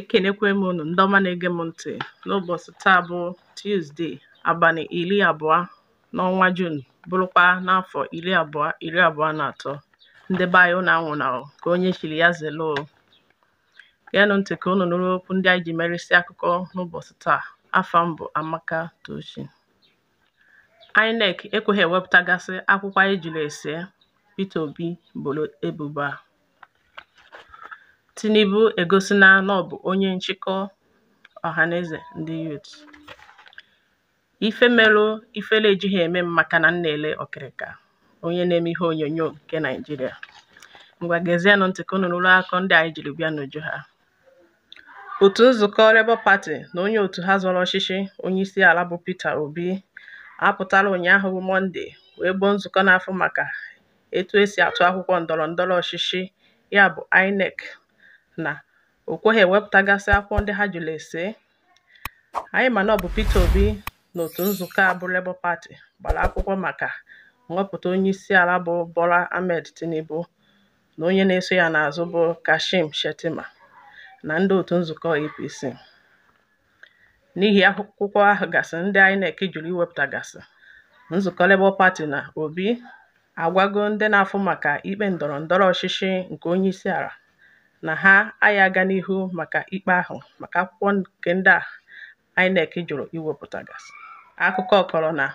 Ekenekwe m unu ndị ọma na-ege m ntị n'ụbọchị taa bụ Tuzdee abalị iri abụọ n'ọnwa Juun bụrụkwa n'afọ iri abụọ iri abụọ na atọ ndị be anyị ka onye chiri ya zere o ntị ka unu nụrụ okwu ndị anyị ji merisi akụkọ n'ụbọchị taa afọ m bụ Amaka Tochi INEC ekweghị ewepụtagasị akwụkwọ anyị jiri ese pete Obi boro ebubo a Tinubu egosina na ọ bụ onye nchịkọ ọhaneze ndị Youth. Ife melụ ifele ejighi eme m maka na m na-ele ọkịrịka onye na-eme ihe onyonyo nke Naịjirịa. Ngwa gezienụ ntị ka unu nụrụ akụkọ ndị anyị jiri bịa n'uju ha. Otu nzukọ Labour Party na onye otu ha zọrọ ọchịchị onyeisiala bụ Peter Obi apụtala ụnyaahụ bụ Mọnde wee gboo nzukọ na-afụ maka etu esi atụ akwụkwọ ndọrọndọrọ ọchịchị ya bụ INEC na o kweghi èwepụ̀tagasị akwụkwọ ndị ha jụrụ èsee anyị mana nà ọ bụ Peter Obi na otu nzukọ a bụ Labour Party gbara akwụkwọ maka nhọpụta onye isi ala bụ Bola Ahmed Tinubu na onye na-eso ya n'azụ bụ Kashim Shettima na ndị otu nzukọ APC n'ihi akwụkwọ ahụ gasị ndị INEC jụrụ iwepụtagasị nzukọ Labour Party na Obi agwago ndị na-afụ maka ikpe ndọrọ ndọrọ ọchịchị nke onye isi ala na ha agha aga n'ihu maka ikpe ahụ maka akwụkwọ nke ndị a INEC jụrụ gasị. Akụkọ kọrọ na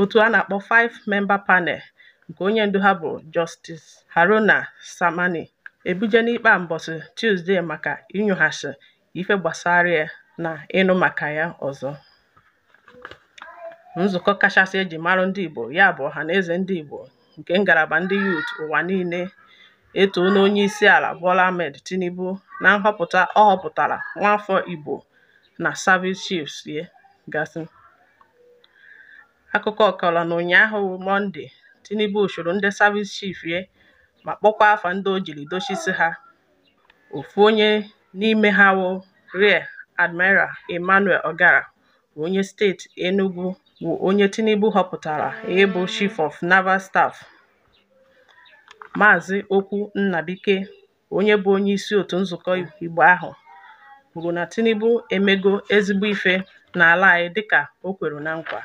otu a na-akpọ Five Member Panel nke onye ndu ha bụ Justice Haruna Samani ebuje n'ikpe mbọsị Tuzdee maka inyoghasị ife gbasara ya na ịnụ maka ya ọzọ. Nzukọ kachasị eji marụ ndị Igbo ya bụ eze Ndị Igbo nke ngalaba ndị Youth ụwa niile e isi ala Bola Ahmed Tinubu na nhọpụta ọ họpụtara nwaafọ Igbo na Service Chiefs ye gasị. Akụkọ kọrọ na ụnyaahụ monde Tinubu usoro ndị Service chief ye ma kpọkwa afa ndị o jiri dochisi ha, ofu onye n'ime ha wụ Rear Admiral Emmanuel Ogara onye steeti Enugu bụ onye Tinubu họpụtara ịbụ Chief of Naval Staff. Maazị Okwu nnabike onye bụ onyeisi otu nzukọ Igbo ahụ kwuru na Tinubu emego ezigbo ife n'ala anyị dịka o kwere na nkwa.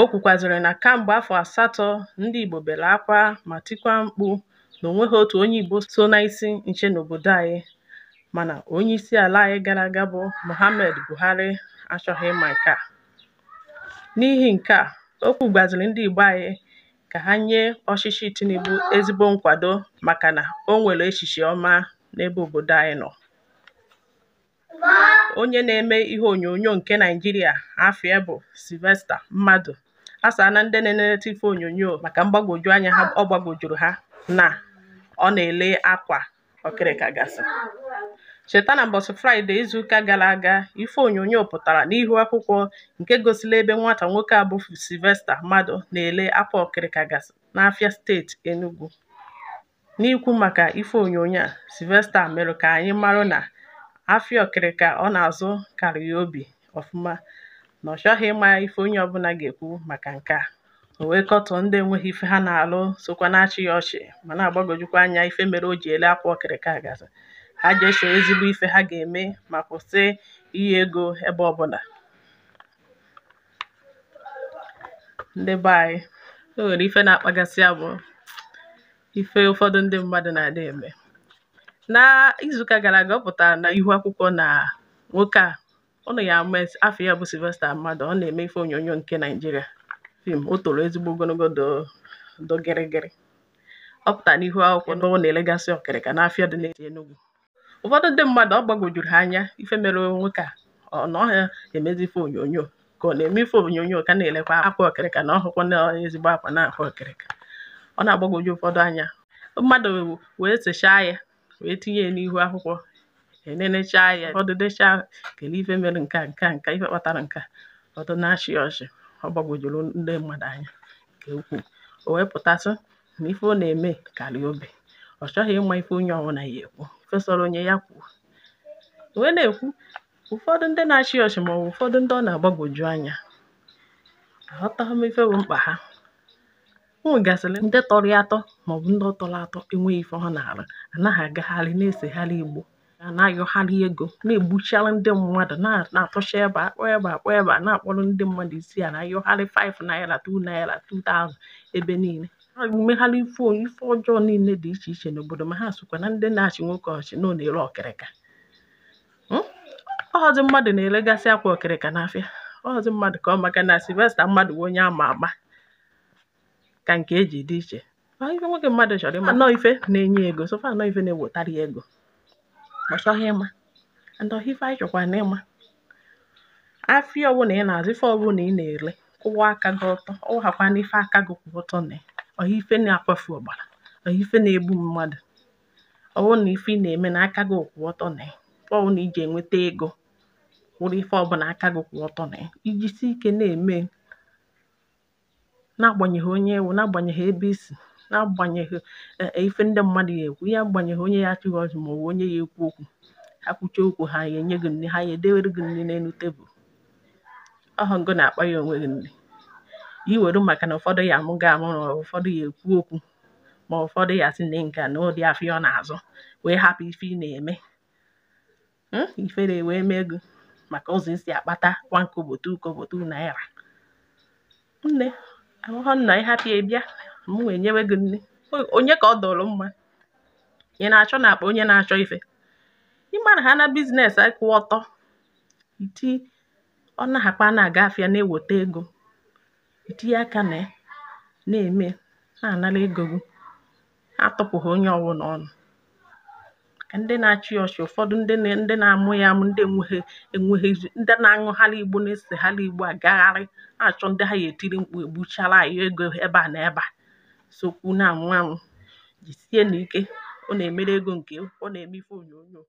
O kwukwaziri na kemgbe afọ asatọ ndị Igbo bere akwa ma tikwa mkpu na onweghị otu onye Igbo so n'isi nche n'obodo anyị mana onye isi ala anyị gara aga bụ Muhammadu Buhari achọghị ịma nke a. N'ihi nke a, o kwugwaziri ndị Igbo anyị ka ha nye ọchịchị Tinubu ezigbo nkwado maka na o nwere echiche ọma n'ebe obodo anyị nọ. Onye na-eme ihe onyonyo nke Naịjirịa afọ bụ Sylvester Mmadụ na ndị na-eleta ife onyonyo maka mgbagwoju anya ọ gbagwojuru ha na ọ na-ele akwa ọkịrịka gasị. Cheta na n'ụbọchị Fraịde izuụka gara aga, ife onyonyo pụtara n'ihu akwụkwọ nke gosiri ebe nwata nwoke a sivesta Mmadụ na-ere apụl ọkịrịkagasị n'afia steeti Enugwu. N'ikwu maka ife onyonyo a, sivesta merụ ka anyị marụ na afịa ọkịrịka ọ na-azụ karịa ya obi ọfụma na ọ chọghị ịma ife onye ọbụla ga-ekwu maka nke a. O wee ndị enweghị ife ha na-alụ sokwa na-achị ya ọchị ma na-agbagojukwa anya ife mere o ji ele akwa ọkịrịka gasị. ha ga-eso ezigbo ife ha ga-eme ma kwụsị iyi ego ebe ọbụla ndị be anyị o e nwere ife na-akpagasị ya ife ụfọdụ ndị mmadụ na-adị eme na gara aga ọ pụtara na ihu akwụkwọ na nwoke a ọ ya ama afọ ya bụ Sylvester mmadụ ọ na-eme ife onyonyo nke Naịjirịa fim o toro ezigbo ogologo do gịrịgịrị ọ pụtara n'ihu akwụkwọ na na-elegasị ọkịrịka n'afịa dị n'ezi Enugu ụfọdụ ndị mmadụ ọ gbagwojuru ha anya ife mere onwe ka ọ na ọhịa emezi ife onyonyo ka ọ na-eme ife onyonyo ka na-elekwa akwa okirika na ọhụkwa na ezigbo akwa na-akwa okirika ọ na-agbagwoju ụfọdụ anya mmadụ wee sechaa ya wee tinye ya n'ihu akwụkwọ enenechaa ya ụfọdụ dechaa kelee ife mere nka nka nka ife kpatara nka ọdụ na-achị ọchị ọ gbagwojuru ndị mmadụ anya nke ukwuu o wee pụtasị na ife ọ na-eme karịa obi, ọ chọghị ịma ife onye ọbụla ya ekwu onye ya kwuo wee na-ekwu ụfọdụ ndị na-achị ọchị maọbụ ụfọdụ ndị ọ na-agbagwoju anya aghọtaghị m ife bụ mkpa ha ụmụ gasịrị ndị tọrọ atọ maọbụ ndị tọrọ atọ enweghị ife ha na-arụ anaghị agagharị na-esegharị igbo na ego na-egbuchara ndị mmadụ na-atụcha ebe akpọ ebe akpọ ebe a na-akpọrọ ndị mmadụ isi a na-ayọgharị 5 naira 2 naira 2000 ebe niile na-emegharị ife ife ọjọọ niile dị iche iche n'obodo ma ha sokwa na ndị na-achị nwoke ọchị na ọ na-ere ọkịrịka ọghọzị hmm? mmadụ na-eregasị akwa ọkịrịka n'afịa ọghọzị mmadụ ka ọ maka na silvesta mmadụ bụ onye ama ama ka nke eji dị iche ife nwoke mmadụ chọrọ ịma nọọ ife na-enye ego sofa nọọ ife na-ewetara ya ego ọ chọghị ịma ndọhị ife anyị chọkwara na ịma afịa ọbụla ị na-azụ ife ọbụla ị na-ere kwụwa aka gị ọtọ ọ hakwana ife aka gị kwụ ọtọ na ya ọha ife na-akwafu ọbara ọha ife na-egbu mmadụ ọ bụrụ na ife ị na-eme na aka gị kwụ ọtọ na ya. bụrụ na iji enweta ego wụrụ ife ọbụla aka gị kwụ ọtọ na si ike na-eme n'agbanyeghị onye ewu n'agbanyeghị ebe isi n'agbanyeghị e, e, ife ndị mmadụ ga-ekwu ihe agbanyeghị onye ya achịghị ọchị ma ọ bụ onye ya ekwu okwu ha kwuchie okwu ha ya enye gị nri ha ya edewere gị nri n'elu tebụl ọhọngụ na-akpa ya onwe gị nri iweru maka na ụfọdụ ya amụgo amụrụ ụfọdụ ya ekwu okwu ma ụfọdụ ya si na nka na ụdị afọ ọ na-azụ wee hapụ ife ị na-eme hmm? ifere wee mee ego maka ụzọ isi akpata kwa nkobotu kobotu naira nne ahụhụ nna ịhapụ hapụ ya bịa m wee nyewe gị nne onye ka ọ dọrọ mma ị na-achọ na akpa onye na-achọ ife ịma na ha na biznes akwụ ọtọ iti ọ na-akpa na-aga afịa na-eweta ego itinye aka na ya na-ème na-ànara egō gị atụ̄pụ̀hụ̀ onye ọwụnà ọnụ̄ màkà ndị na-achị ya ọchị ụ̀fọdụ ndị na ndị na-amụ ya àmụ ndị enweghị ndị na-aṅụgharị Igbo na-esègharị Igbo àgagharị na ndị ha gà-ètiri mkpù ègbuchara ego ebe à nà ebe à sokwu na anwụ anwụ̄ sie na ike ọ na-emere ego nke ọ na-eme ife onyonyo.